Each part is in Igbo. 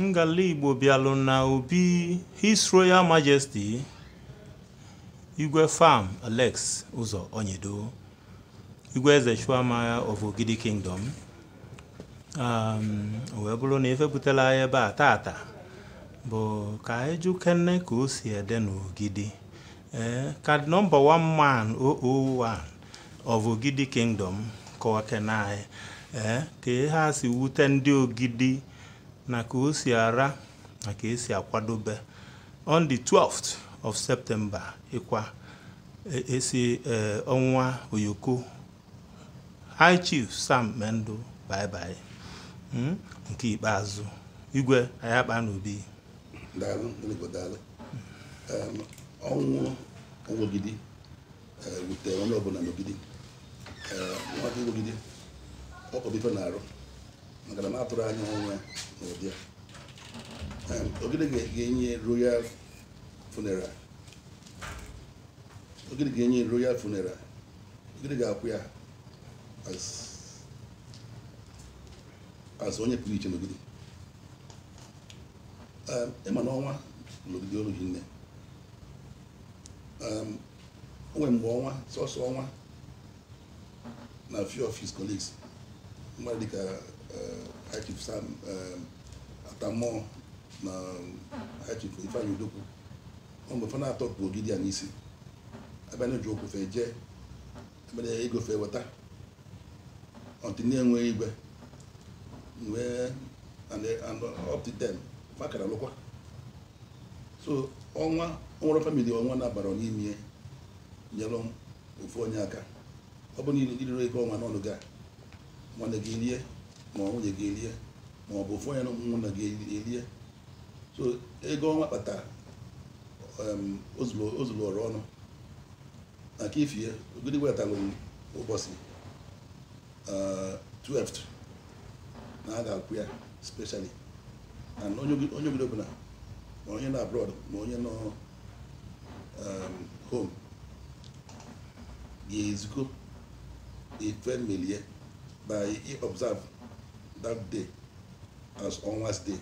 ngala igbo bịalụ na obi his royal majesty igwe fam alex ụzọ onyedo igwe eze chuamagha of ogidi kingdom um, wee bụrụ na efepụtala ya ebe a tata bụ ka anyị jụ kene ka o si ede n'ogidi ee eh, ka nọmba one man 001 of ogidi kingdom kọwa kene anyị ee eh, ka ha si wute ndị ogidi na ka o si ara na ka esi akwadobe on the 12th of september ịkwa esi e eh, ọnwa oyoko high chief sam mendo bye bye hmm? nke ikpeazụ igwe ayakpa n'obi um, ọnwụ ogidi eh, wutere onye ọbụla n'ogidi ọkọbido na-arụ maka na m atụrụ anya ọnwa na ụdị ogede ga-enye royal funeral ogede ga-enye royal funeral ogede ga-akwụ ya as onye pụrụ iche n'ogidi ịma n'ọnwa ọnwa n'ogidi olu nne o nwere mgbe ọnwa sọsọ ọnwa na few of his colleagues mma dịka Achif uh, Sam um, Atamọ na Achif Ifeanyi Udokwu mgbe fa na-atọ pụ ogidi a n'isi abịa ji okwu fee jee abịa ego fee weta ọtinye enwe igwe wee up to ten fakara lụkwa so ọnwa ọnwụrụ famili ọnwa na-abara n'ime nyere ofu onye aka ọ bụ niile irire ego ọnwa n'ọnụ gaa nwanne gị elie ma nwunye gị elie ma ọ bụ ofu onye na ụmụnna gị elie so ego ọnwa kpatara um, ozuru ọrụ ọnụ na ka ifie ogidi wetalụ ụbọchị 12 uh, na a ga-akwụ ya specially na onye obodo ọbụla ma onye nọ abroad ma onye nọ um, home ga ezuko ife na i observe that day as ọnwa's day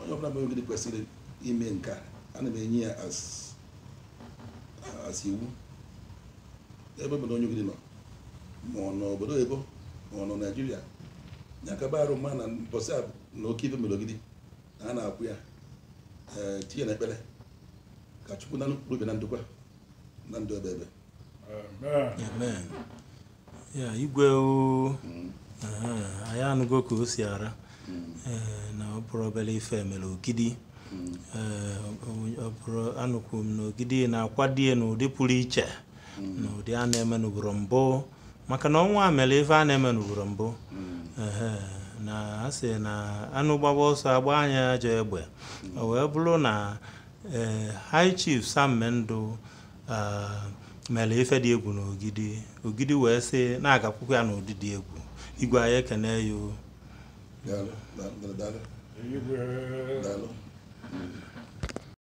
onye ọbụla mere kwesịrị ime nke a ana m enye ya as iwu ebe obodo onye ogidi nọ ma ọ nọ obodo ebo ma ọ nọ naijiria ya ka arụ mma na mbọsị na oke ife mere na a na-akwụ ya tinye na ekpere ka chukwu na nnukwu na ndụkwa na ndụ ebe ebe ya igwe mm. anyị anụgo ka o si ara mm. eh, na ọ bụrụ obere ife mere ogidi mm. eh, anụkwu m na ogidi na-akwadie n'ụdị pụrụ iche na ụdị a na-eme n'ugboro mbụ maka na ọnwa mere ife a na-eme n'ugboro mbụ na a sị na anụ gbaba ọsọ agba anya ajọ egbe o wee bụrụ na eh, high chief sammendụ ah, mere ife dị egwu n'ogidi ogidi wee sị na-agakwukwa ya n'ụdị dị egwu igwe anyị ekene ya o